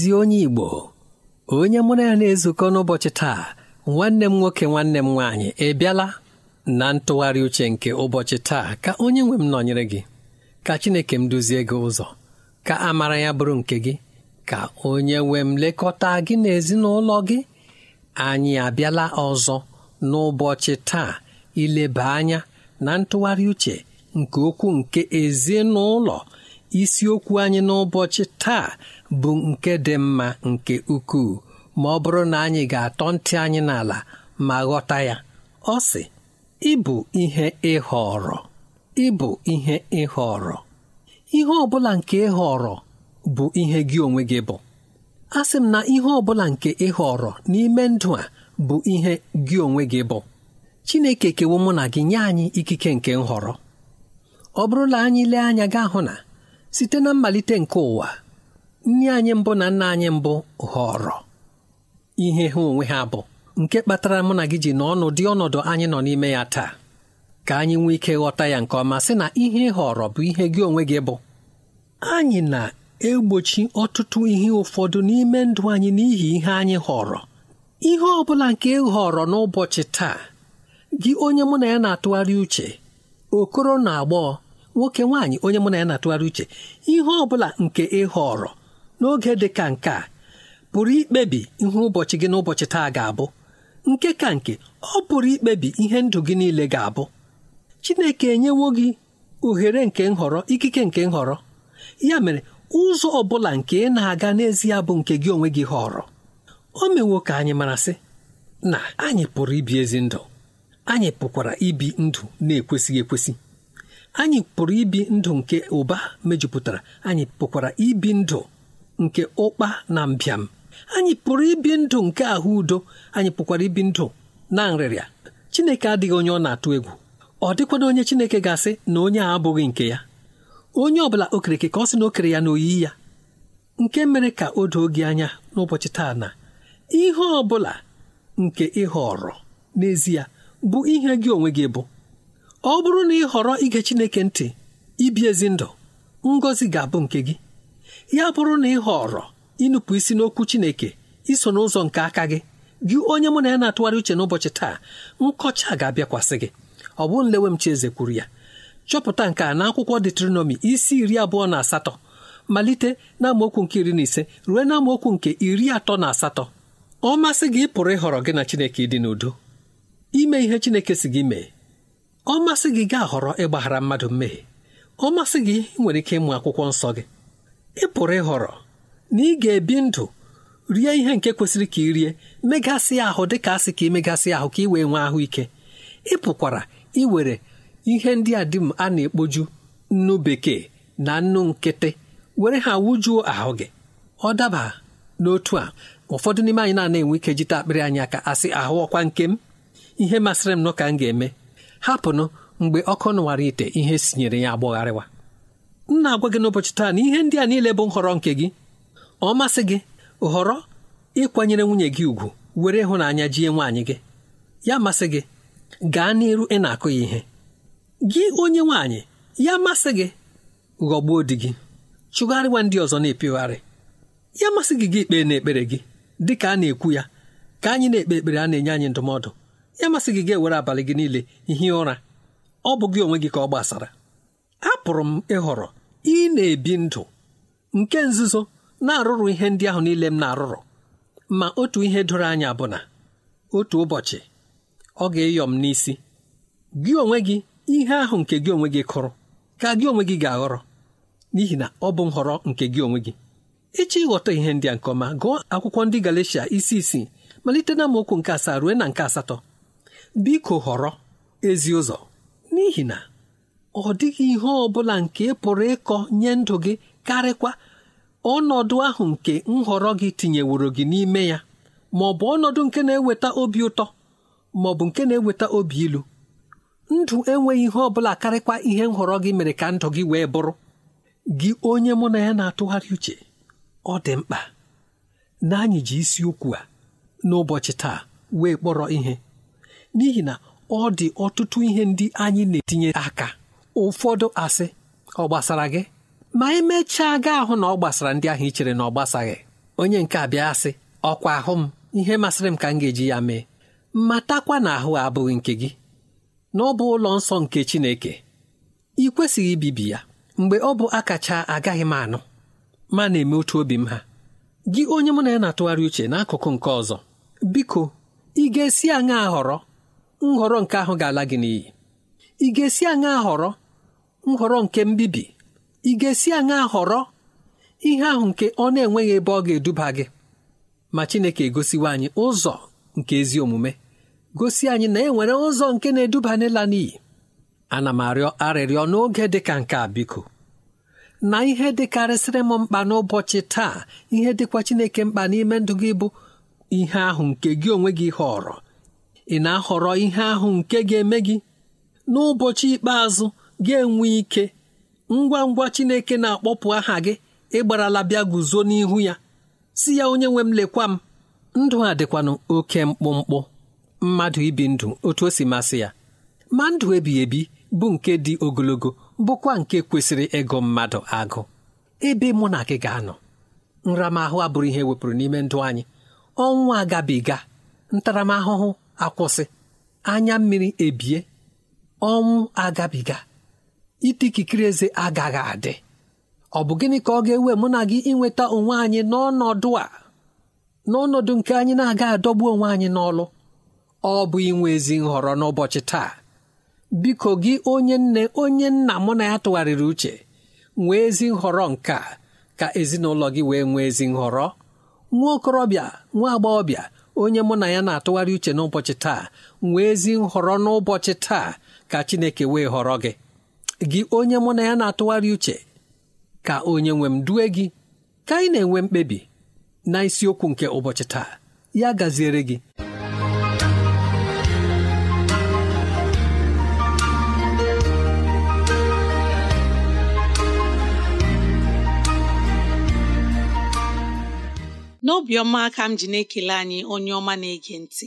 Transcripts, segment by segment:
ezi onye Igbo onye mụrụ ya na-ezukọ n'ụbọchị taa nwanne m nwoke nwanne m nwaanyị ịbịala na ntụgharị uche nke ụbọchị taa ka onye nwe m nọnyere gị ka Chineke m duzie gị ụzọ ka amara ya bụrụ nke gị ka onye nwe m lekọta gị n'ezinụlọ gị anyị abịala ọzọ n'ụbọchị taa ileba anya na ntụgharị uche nke okwu nke ezinụlọ isiokwu anyị n'ụbọchị taa bụ nke dị mma nke ukwuu ma ọ bụrụ na anyị ga-atọ ntị anyị n'ala ma ghọta ya ọ sị ịbụ ihe ịhọrọ ịbụ ihe ịhọrọ ihe ọ bụla nke ịhọrọ bụ ihe gị onwe gị bụ a sị m na ihe ọ bụla nke ịhọrọ n'ime ndụ a bụ ihe gị onwe gị bụ Chineke kewo mụ na gị nye anyị ikike nke nhọrọ ọ bụrụla anyị lee anya gaa hụ na site na mmalite nke ụwa nne anyị mbụ na nna anyị mbụ ghọrọ ihe ha onwe ha bụ nke kpatara mụ na gị ji n'ọnụ dị ọnọdụ anyị nọ n'ime ya taa ka anyị nwee ike ghọta ya nke ọma sị na ihe họrọ bụ ihe gị onwe gị bụ anyị na-egbochi ọtụtụ ihe ụfọdụ n'ime ndụ anyị n'ihi ihe anyị họrọ ihe ọ bụla nke ị n'ụbọchị taa gị onye mụ na ya na-atụgharị uche okoro na agbọghọ nwoke nwaanyị onye mụ na ya na-atụgharị uche ihe ọ bụla nke ị họrọ n'oge dị ka nke a pụrụ ikpebi ihe ụbọchị gị n'ụbọchị taa ga-abụ nke ka nke ọ pụrụ ikpebi ihe ndụ gị niile ga-abụ Chineke enyewo gị ohere nke nhọrọ ikike nke nhọrọ ya mere ụzọ ọ bụla nke ị na-aga n'ezie bụ nke gị onwe gị họrọ o mewo ka anyị mara sị na anyị pụrụ ibi ezi ndụ anyị pụkwara ibi ndụ na-ekwesịghị ekwesị anyị pụrụ ibi ndụ nke ụba mejupụtara anyị pụkwara ibi ndụ nke ụkpa na mbịam anyị pụrụ ibi ndụ nke ahụ udo anyị pụkwara ibi ndụ na nrịrịa Chineke adịghị onye ọ na-atụ egwu ọ dịkwana onye Chineke ga-asị na onye a abụghị nke ya onye ọbụla okereke ka ọ sị na okere ya na oyi ya nke mere ka o doo gị anya n'ụbọchị taa na ihe ọ bụla nke ịhọrọ n'ezie bụ ihe gị onwe gị bụ ọ bụrụ na ị họrọ ige Chineke ntị ibi ezi ndụ ngọzi ga-abụ nke gị ya bụrụ na ị họrọ ịnụpụ isi n'okwu Chineke iso n'ụzọ nke aka gị gị onye mụ na ya na-atụgharị uche n'ụbọchị taa nkọcha ga-abịakwasị gị ọ bụ nlewem chieze kwuru ya chọpụta nke a na akwụkwọ detronọmi isi iri abụọ na asatọ malite n'amaokwu nke iri na ise ruo n'amaokwu nke iri atọ na asatọ ọ masị gị pụrụ ịhọrọ gị na Chineke ịdị n'udo ime ihe Chineke si gị mee ọ masị gị gaa họrọ ịgbaghara mmadụ mmehie ọ masị gị nwere ike ịmụ akwụkwọ nsọ gị ị pụrụ ịhọrọ na ị ga-ebi ndụ rie ihe nke kwesịrị ka ị rie megasị ahụ dị ka asị ka imegasị ahụ ka ị wee nwee ahụike ị pụkwara iwere ihe ndị a dị m a na-ekpoju nnu bekee na nnu nkịtị were ha wụjuo ahụ gị ọ daba n'otu a ụfọdụ n'ime anyị na-enwe ike jite akpịrị anyị aka asị ahụ ọkwa nke m ihe masịrị m nọ ka m ga-eme hapụnụ mgbe ọkụ nụwara ite ihe sinyere ya agbọgharịwa m na-agwa gị n'ụbọchị taa na ihe ndị a niile bụ nhọrọ nke gị ọ masị gị họrọ ịkwanyere nwunye gị ugwu were ịhụnanya jie nwaanyị gị ya masị gị gaa n'iru ị na-akụ ya ihe gị onye nwaanyị ya masị gị ghọgbuo di gị chụgharịwa ndị ọzọ na-epigharị ya masị gị gị na n'ekpere gị dị ka a na-ekwu ya ka anyị na-ekpe ekpere a na-enye anyị ndụmọdụ ya masị gị ga-ewere abalị gị niile hie ụra ọ bụ gị onwe gị ka ọ gbasara apụrụ m ịhọrọ ị na-ebi ndụ nke nzuzo na-arụrụ ihe ndị ahụ niile m na-arụrụ ma otu ihe doro anya bụ na otu ụbọchị ọ ga-eyọ m n'isi gị onwe gị ihe ahụ nke gị onwe gị kụrụ ka gị onwe gị ga-aghọrọ n'ihi na ọ bụ nhọrọ nke gị onwe gị ịchọ ịghọta ihe ndị a nke ọma gụọ akwụkwọ ndị galecia isi isii malite na nke asaa ruo na nke asatọ biko họrọ ezi ụzọ n'ihi na ọ dịghị ihe ọ bụla nke pụrụ ịkọ nye ndụ gị karịkwa ọnọdụ ahụ nke nhọrọ gị tinyeworo gị n'ime ya ma ọ bụ ọnọdụ nke na-eweta obi ụtọ ma ọ bụ nke na-eweta obi ilu ndụ enweghị ihe ọ bụla karịkwa ihe nhọrọ gị mere ka ndụ gị wee bụrụ gị onye mụ na ya na-atụgharị uche ọ dị mkpa na anyị ji isiokwu a n'ụbọchị taa wee kpọrọ ihe n'ihi na ọ dị ọtụtụ ihe ndị anyị na-etinye aka ụfọdụ asị ọ gbasara gị ma emechaa gaa ahụ na ọ gbasara ndị ahụ i chere na ọ gbasaghị onye nke abịa asị ọkwa ahụ m ihe masịrị m ka m ga-eji ya mee matakwa na ahụ abụghị nke gị na ọ bụ ụlọ nsọ nke Chineke ị kwesịghị ibibi ya mgbe ọ bụ akacha agaghị m anụ ma na-eme otu obi m ha gị onye mụ na ya na-atụgharị uche n'akụkụ nke ọzọ biko ị ga-esi aṅa họrọ nhọrọ nke ahụ ga-ala gị n'iyi ị ga-esi aṅa họrọ nhọrọ nke mbibi ị ga-esi aṅa họrọ ihe ahụ nke ọ na-enweghị ebe ọ ga-eduba gị ma Chineke egosiwa anyị ụzọ nke ezi omume gosi anyị na e nwere ụzọ nke na-eduba n'ịla n'iyi ana m arịọ arịrịọ n'oge dịka nke a biko na ihe dịkarịsịrị m mkpa n'ụbọchị taa ihe dịkwa Chineke mkpa n'ime ndụ gị bụ ihe ahụ nke gị onwe gị họrọ ị na-ahọrọ ihe ahụ nke ga-eme gị n'ụbọchị ikpeazụ ga-enwe ike ngwa ngwa Chineke na-akpọpụ aha gị ịgbarala bịa guzo n'ihu ya si ya onye nwe m lekwa m ndụ a dịkwanụ oke mkpụmkpụ mmadụ ibi ndụ otu o si masị ya ma ndụ ebighị ebi bụ nke dị ogologo bụkwa nke kwesịrị ịgụ mmadụ agụ ebe mụ na gị ga-anọ nramahụ abụrụ ihe e wepụrụ n'ime ndụ anyị ọnwụ agabiga ntaramahụhụ akwụsị anya mmiri ebie ọnwụ agabiga ite ikikere eze agaghị adị ọ bụ gịnị ka ọ ga-ewe mụ na gị inweta onwe anyị n'ọnọdụ a n'ọnọdụ nke anyị na-aga adọgbu onwe anyị n'ọlụ ọ bụ inwe ezi nhọrọ n'ụbọchị taa biko gị onye nne onye nna mụ na ya tụgharịrị uche nwee ezi nhọrọ nke a ka ezinụlọ gị wee nwee ezi nhọrọ nwa okorobịa nwa agbọghọbịa onye mụ na ya na-atụgharị uche n'ụbọchị taa nwee ezi nhọrọ n'ụbọchị taa ka Chineke wee họrọ gị gị onye mụ na ya na-atụgharị uche ka onye nwe m due gị ka anyị na-enwe mkpebi na isiokwu nke ụbọchị taa ya gaziere gị n'obiọma ka m ji na-ekele anyị onye ọma na-ege ntị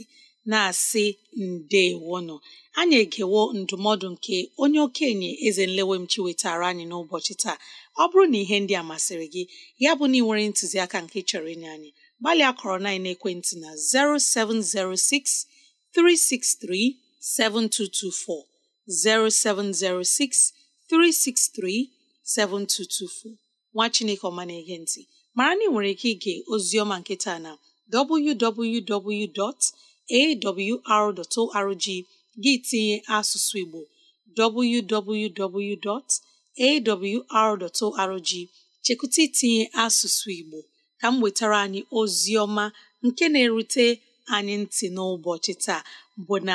na-asị ndewonụ anyị egewo ndụmọdụ nke onye okenye eze nlewemchi wetara anyị n'ụbọchị taa ọ bụrụ na ihe ndị a masịrị gị ya bụ na ị nwere ntụziaka nke chọrọ ịnye anyị gbalịa kọrọ na ekwentị na 0706363724 0706363724 0706 363 7224 nwa Chineke ọma na-ege ntị mara na ị nwere ike ige ozi ọma na www. awr.org gị tinye asụsụ Igbo www.awr.org chekwụta itinye asụsụ Igbo ka m wetara anyị ozi ọma nke na-erute anyị ntị n'ụbọchị taa bụ na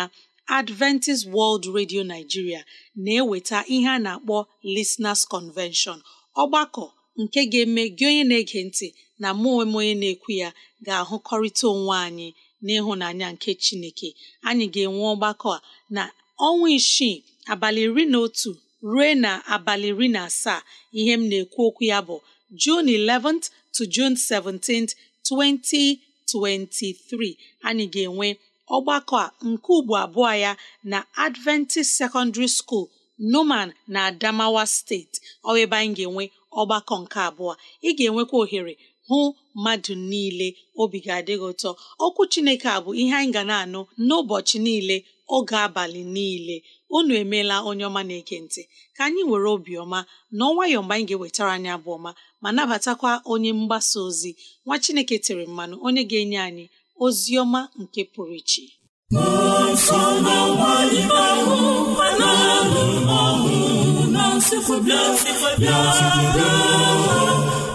Adventist World Radio Nigeria na-eweta ihe a na-akpọ Listeners Convention ọgbakọ nke ga-eme gị onye na-ege ntị na mụ onwe onye na-ekwu ya ga-ahụkọrịta onwe anyị n'ịhụnanya nke chineke anyị ga-enwe ọgbakọ a na ọnwa isii abalị iri na otu ruo na abalị iri na asaa ihe m na-ekwu okwu ya bụ June 11th to June 17th 2023 anyị ga-enwe ọgbakọ a nke ugbo abụọ ya na Adventist Secondary School Numan na Adamawa steeti ọ ebe anyị ga-enwe ọgbakọ nke abụọ ị ga-enwekwa ohere hụ mmadụ niile obi ga adịghị ụtọ okwu chineke a bụ ihe anyị ga na-anụ n'ụbọchị niile oge abalị niile unu emeela onye ọma na ka anyị were obiọma na nwayọọ mgbe anyị ga-ewetara anyị abụ ọma ma nabatakwa onye mgbasa ozi nwa chineke tere mmanụ onye ga-enye anyị ozi ọma nke pụrụ iche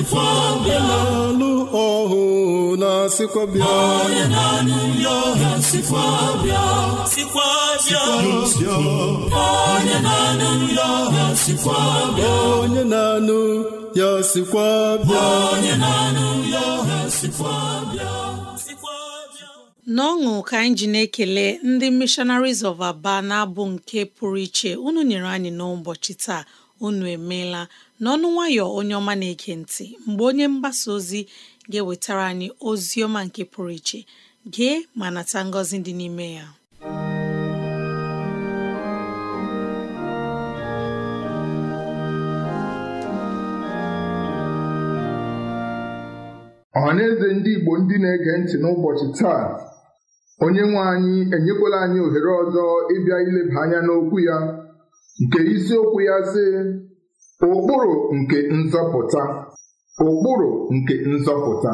na-alụ ọhụ na-asịkwa bịa onye na-anụ ya sikwa bịa n'ọṅụ ka anyị ji na-ekele ndị missionaries of aba na-abụ nke pụrụ iche unu nyere anyị n'ụbọchị taa unu emeela n'ọnụ nwayọ onye ọma na-ege ntị mgbe onye mgbasa ozi ga-ewetara anyị ozi ọma nke pụrụ iche gee ma nata ngọzi dị n'ime ya eze ndị Igbo ndị na-ege ntị n'ụbọchị taa onye nwe anyị enyekwala anyị ohere ọzọ ịbịa ileba anya n'okwu ya nke isiokwu ya sị ụkpụrụ nke nzọpụta ụkpụrụ nke nzọpụta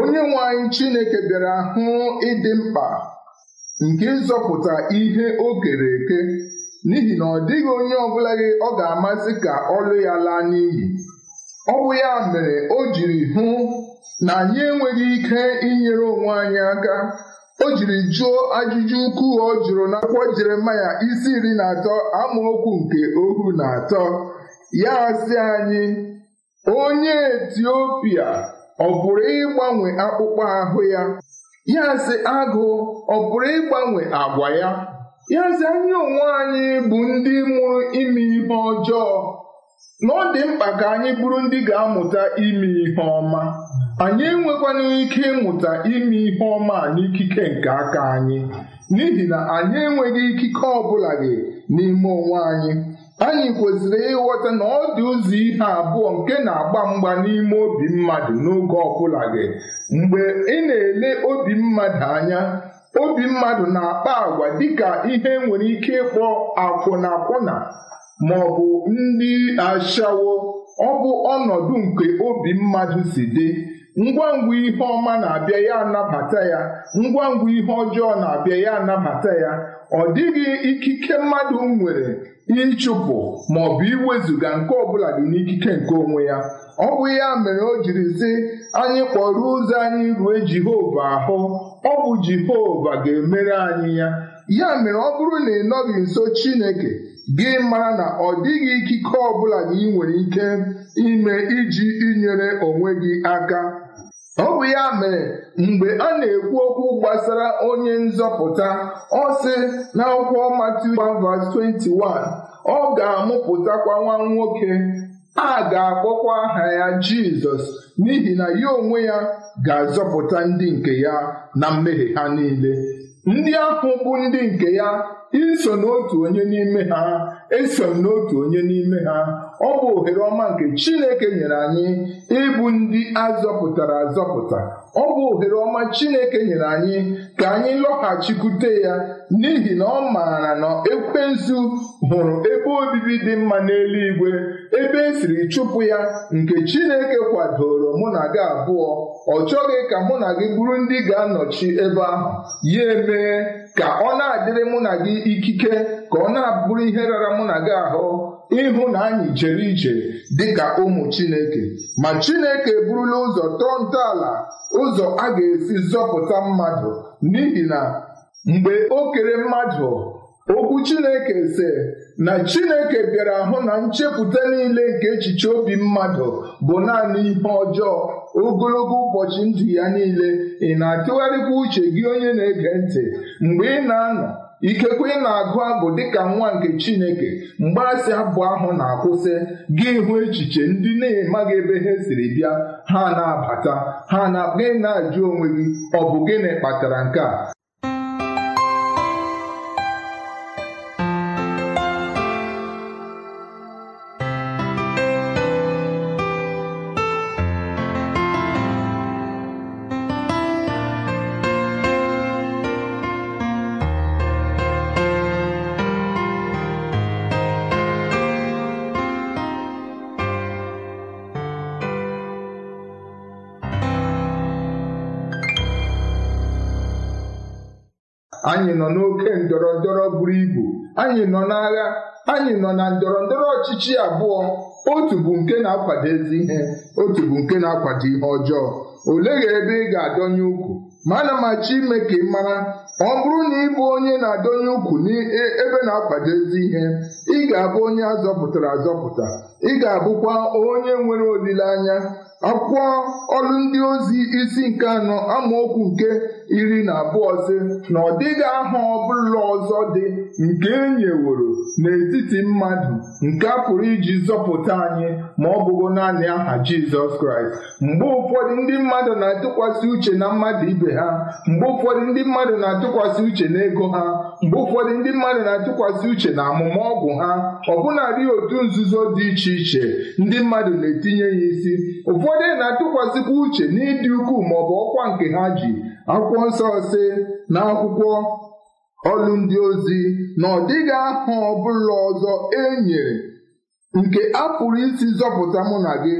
onye nwe anyị Chineke bịara hụ ịdị mkpa nke ịzọpụta ihe o kere eke n'ihi na ọ dịghị onye ọ bụla gị ọ ga-amasị ka ọlụ ya laa n'iyi ọ bụ ya mere o jiri hụ na anyị enweghị ike inyere onwe anyị aka o jiri jụọ ajụjụ ukwu ọ jụrụ akwụkwọ Jeremaya isi iri na atọ amaokwu nke ohu na atọ ya asị anyị onye Etiopia ọ pụrụ ịgbanwe akpụkpọ ahụ ya ya agụ ọ pụrụ ịgbanwe agwa ya ya sị anyị onwe anyị bụ ndị mụrụ ime ihe ọjọọ na ọ dị mkpa ka anyị bụrụ ndị ga-amụta ime ihe ọma anyị enwekwana ike ịmụta ime ihe ọma n'ikike nke aka anyị n'ihi na anyị enweghị ikike ọ bụla gị n'ime onwe anyị anyị kwesịrị ịghọta na ọ dị ụzọ ihe abụọ nke na-agba mgba n'ime obi mmadụ n'oge ọbụla gị mgbe ị na-ele obi mmadụ anya obi mmadụ na-akpa agwa dịka ihe nwere ike ịkpọ akwụna ma ọ bụ ndị ashawo ọ bụ ọnọdụ nke obi mmadụ si dị ngwa ngwa ihe ọma na-abịa ya anabata ya ngwa ngwa ihe ọjọọ na-abịa ya anabata ya ọ dịghị ikike mmadụ nwere ịchụpụ bụ iwezuga nke ọbụla dị n'ikike nke onwe ya ọ bụ ya mere o jiri sị anyị kpọrọ ụzọ anyị rue Jehova ahụ ọ bụ Jehova ga-emere anyị ya ya mere ọ bụrụ na ị nọghị nso Chineke gị mara na ọ dịghị ikike ọbụla gị nwere ike ime iji inyere onwe gị aka Ọ bụ ya mere mgbe a na-ekwu okwu gbasara onye nzọpụta ọ sị n'akwụkwọ Matiu 21, ọ ga-amụpụtakwa nwa nwoke a ga-akpọkwa aha ya Jizọs n'ihi na ya onwe ya ga-azọpụta ndị nke ya na mmehie ha niile. Ndị ahụ bụ ndị nke ya iso n'otu onye n'ime ha eso n'otu onye n'ime ha ọ bụ ohere ọma nke Chineke nyere anyị ịbụ ndị azọpụtara azọpụta ọ bụ ohere ọma Chineke nyere anyị ka anyị lọghachikwute ya n'ihi na ọ maara na ekwensu hụrụ ebe obibi dị mma n'eluigwe ebe esiri chụpụ ya nke Chineke kwadoro mụ na gị abụọ ọ chọghị ka mụ na gị bụrụ ndị ga-anọchi ebe ahụ ya emee ka ọ na-adịrị mụ na gị ikike ka ọ na-abụrụ ihe rara mụ na gị ahụ ịhụ na anyị jere ije ka ụmụ Chineke ma Chineke eburula ụzọ tọọ ntọala ụzọ a ga-esi zọpụta mmadụ n'ihi na mgbe okere mmadụ okwu Chineke se na Chineke bịara hụ na nchepụta niile nke echiche obi mmadụ bụ naanị ihe ọjọọ ogologo ụbọchị ndụ ya niile ị na-atụgharịkwa uche gị onye na-ege ntị mgbe ị na-anọ ikekwe na-agụ abụ dịka nwa nke Chineke mgbarasị abụ ahụ na-akwụsị gị hụ echiche ndị na-emaghị ebe ha siri bịa ha na-abata ha na gị na-ajụ onwe gị ọ bụ gịnị kpatara nke a anyị nọ n'oke ndọrọ ndọrọ buru ibu anyị nọ n'agha anyị nọ na ndọrọ ndọrọ ọchịchị abụọ otu bụ nke na-akwado ezi ihe otu bụ nke na-akwado ihe ọjọọ olegha ebe ị ga-adọnye ukwu ma ana machi ime ka ị mara ọ bụrụ na ị bụ onye na-adọnye ukwu e, ebe na-akwado ezi ihe ị ga-abụ onye azọpụtara azọpụta ị ga-abụkwa onye nwere olileanya akwụkwọ ọrụ ndị ozi isi nke anọ amaokwu nke iri na abụọ si na ọ dịghị aha ọbụla ọzọ dị nke e nyeworo n'etiti mmadụ nke a pụrụ iji zọpụta anyị ma ọ bụgo naanị aha Jizọs Kraịst mgbe ụfọdụ ndị mmadụ na-atụkwasị uche na mmadụ ibe ha mgbe ụfọdụ ndị mmadụ na-atụkwasị uche na ego ha mgbe ụfọdụ ndị mmadụ na-atụkwasị uche na amụma ọgwụ ha ọbụnadị otu nzuzo dị iche iche ndị mmadụ na-etinye ya isi ụfọdụ na-atụkwasịkwa uche n'ịdị ukwuu bụ ọkwa nke ha ji akwụkwọ nsọ si na akwụkwọ ọlụ ndị ozi na ọ dịghị aha ọbụla ọzọ e nyere nke a pụrụ isi zọpụta mụ na gị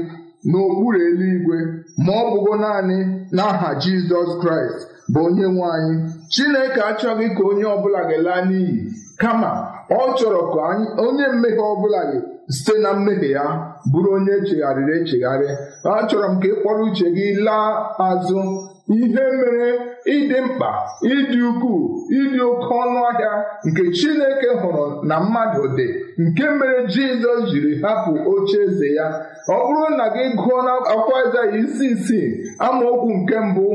n'okpuru eluigwe ma ọ bụgo naanị n'aha Jizọs Kraịst bụ onye nwe anyị Chineke achọghị ka onye ọbụla ga-laa n'iyi kama ọ chọrọ ka onye mmehie ọbụla gị site na mmehie ya bụrụ onye echegharịrị echegharị achọrọ m ka ị kpọrọ uche gị laa azụ ihe mere ịdị mkpa ịdị ukwuu ịdị oke ọnụ ahịa nke Chineke hụrụ na mmadụ dị nke mere Jizọs jiri hapụ oche eze ya ọ bụrụ na gị gụọ akwa Aịzaya isi isii amaokwu nke mbụ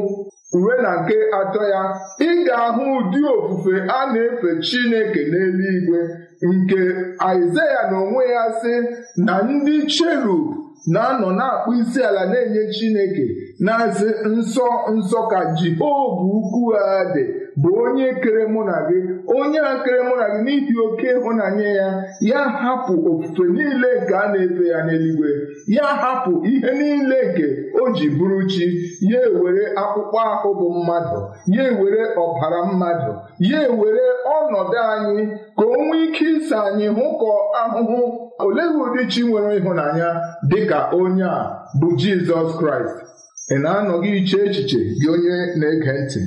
uwe na nke atọ ya ị ahụ ụdị ofufe a na-efe Chineke n'eluigwe nke Aịzaya na onwe ya sị na ndị cherub na-anọ na-akpụ isi ala na-enye Chineke na-asị nsọ nsọ ka Jehova ukwu ha dị bụ onye kere mụ na gị onye a kere mụ na gị n'ihi oke ịhụnanya ya ya hapụ ofufe niile nke a na-efe ya n'eluigwe ya hapụ ihe niile nke o ji bụrụ chi ya ewere akpụkpọ ahụ bụ mmadụ ya ewere ọbara mmadụ ya ewere ọnọdụ anyị ka o nwee ike ịsa anyị hụkọ ahụhụ olee ụdị chi nwere ịhụnanya dịka onye a bụ Jizọs Kraịst ị na-anọghị iche echiche gị onye na-ege ntị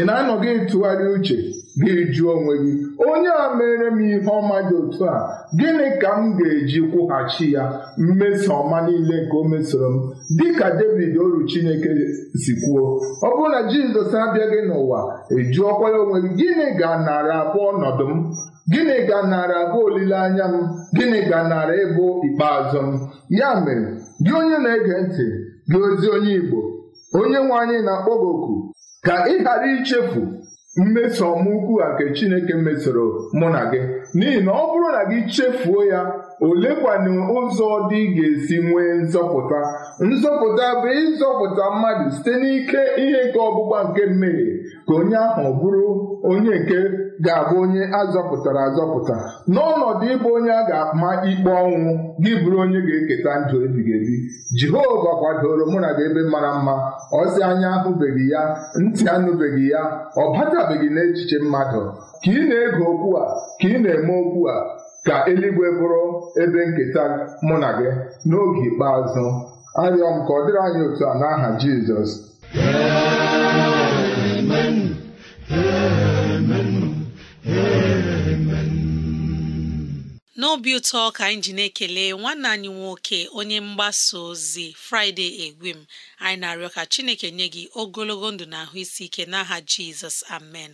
ị na-anọghị ịtụgharị uche gị jụọ onwe gị onye a mere m ihe ọma dị otu a gịnị ka m ga-eji kwụghachi ya mmeso ọma niile nke o mesoro m dịka David oru Chineke si kwuo ọ bụrụ na Jizọs abịaghị n'ụwa ejụọkwa ya onwe gị gịnị ga narị abụọ ọnọdụ m gịnị ga narị abụ olileanya m gịnị ga narị ịbụ ikpeazụ m ya mere gị onye na-ege ntị gị ozi onye Igbo onye nwe anyị na-akpọ gị oku ka ị ghara ichefu mmeso ọma ukwu a nke Chineke mesoro mụ na gị n'ihi na ọ bụrụ na gị chefuo ya olekwanụ ụzọ dị ga-esi nwee nzọpụta nzọpụta bụ ịzọpụta mmadụ site n'ike ihe nke ọgbụgba nke mmehie ka onye ahụ bụrụ onye nke ga-abụ onye azọpụtara azọpụta n'ọnọdụ ịbụ onye a ga-ama ikpe ọnwụ gị bụrụ onye ga-eketa ndụ ebighị ebi Jehova kwadoro mụ na gị ebe mara mma ọsị anya ahụbeghị ya ntị anụbeghị ya ọ batabeghị n'echiche mmadụ ka ị na-ege okwu a ka ị na-eme okwu a Ka eluigwe bụrụ ebe nketa mụ na gị n'oge ikpeazụ. Arịọ m ka ọ dịrị anyị otu a n'aha Jizọs. n'obi ụtọ ka anyị ji na-ekele nwanne anyị nwoke onye mgbasa ozi fraịde Egwim anyị na-arịọ ka Chineke nye gị ogologo ndụ na ahụ isi ike n'aha Jizọs amen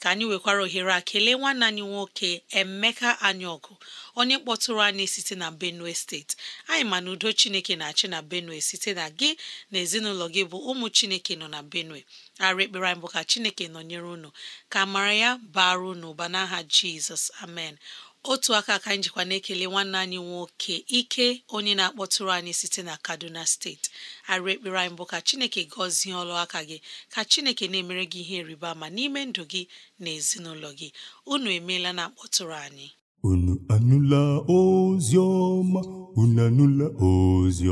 ka anyị nwekwara ohere a kelee nwanne anyị nwoke Emeka ọgụ onye kpọtụrụ anyị site na Benue steeti anyị ma na udo Chineke na-achị na Benue site na gị na ezinụlọ gị bụ ụmụ Chineke nọ na Benue ara ekpere anyị bụ ka Chineke nọnyere unu ka mara ya bara unu ụba n'aha Jizọs amen otu aka ka anyị jikwa na-ekele nwanne anyị nwoke ike onye na-akpọtụrụ anyị site na kaduna steeti arụ ekpere anyị bụ ka chineke gọzie ọlụ aka gị ka chineke na-emere gị ihe rịba ma n'ime ndụ gị na ezinụlọ gị unu emeela na akpọtụrụ anyị unu anụla ozi unu anụla ozi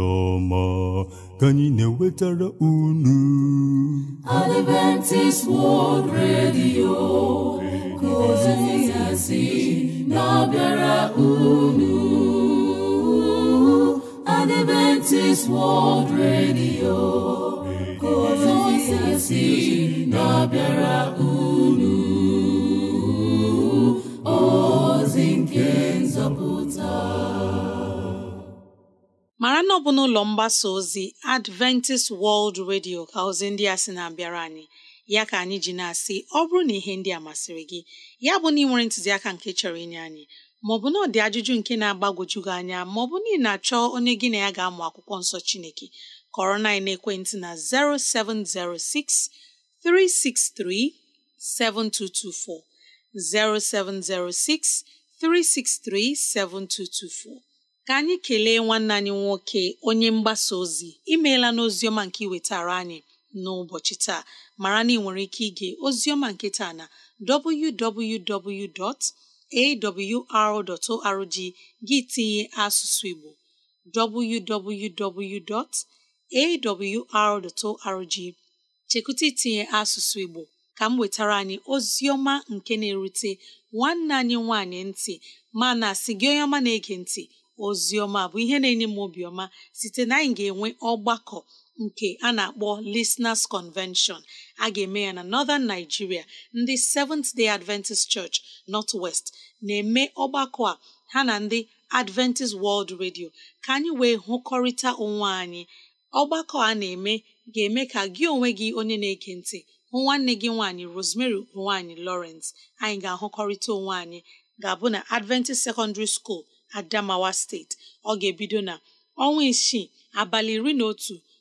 ka anyị na-ewetara unu Adventist World Radio kozizasi na-abịara unu Adventist World Radio kozizasi na-abịara unu ozi nke nzọpụta mara na ọ n'ụlọ mgbasa ozi Adventist World Radio ka ozi ndị a sị na-abịara anyị ya ka anyị ji na-asị ọ bụrụ na ihe ndị a masịrị gị ya bụ na ị nwere ntụziaka nke chọrọ inye anyị maọbụ na ọ dị ajụjụ nke na-agbagwoju gị anya maọbụ na ị na-achọ onye gị na ya ga-amụ akwụkwọ nsọ Chineke kọrọ na ekwentị na 0706 363 7224 0706 363 7224 ka anyị kelee nwanne anyị nwoke onye mgbasa ozi imeela n'oziọma nke iwetara anyị n'ụbọchị taa mara na ị nwere ike ige oziọma nke taa na www.awr.org gị tinye asụsụ Igbo www.awr.org chekwụta itinye asụsụ Igbo ka m wetara anyị oziọma nke na-erute nwanne anyị nwanyị ntị mana asị gị onye ọma na-ege ntị oziọma bụ ihe na-enye m obiọma site na anyị ga-enwe ọgbakọ nke a na-akpọ Listeners Convention a ga-eme ya na Northern Nigeria ndị Seventh Day Adventist Church North West na-eme ọgbakọ a ha na ndị Adventist World Radio ka anyị wee hụkọrịta onwe anyị ọgbakọ a na-eme ga-eme ka gị onwe gị onye na-ege ntị hụ nwanne gị nwaanyị Rosemary nwaanyị Lawrence anyị ga-ahụkọrịta onwe anyị ga-abụ na Adventist Secondary School Adamawa Steeti ọ ga-ebido na ọnwa isii abalị iri na otu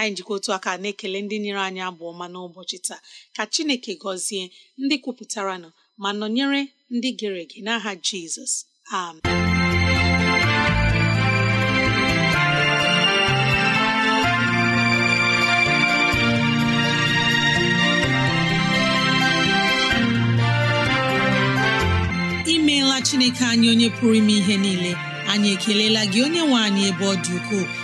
anyị jikọ otu aka na-ekele ndị nyere anyị abụ ọma n'ụbọchị taa ka chineke gọzie ndị kwupụtara nọ ma nọnyere ndị gere ege n'aha jizọs amen imeela chineke anyị onye pụrụ ime ihe niile anyị ekelela gị onye nwe anyị ebe ọ dị ukwuu